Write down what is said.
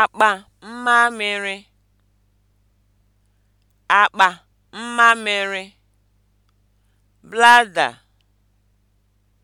akpa mmamịrị akpa